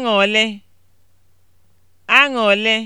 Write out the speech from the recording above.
Aṅụrị (aṅụrị)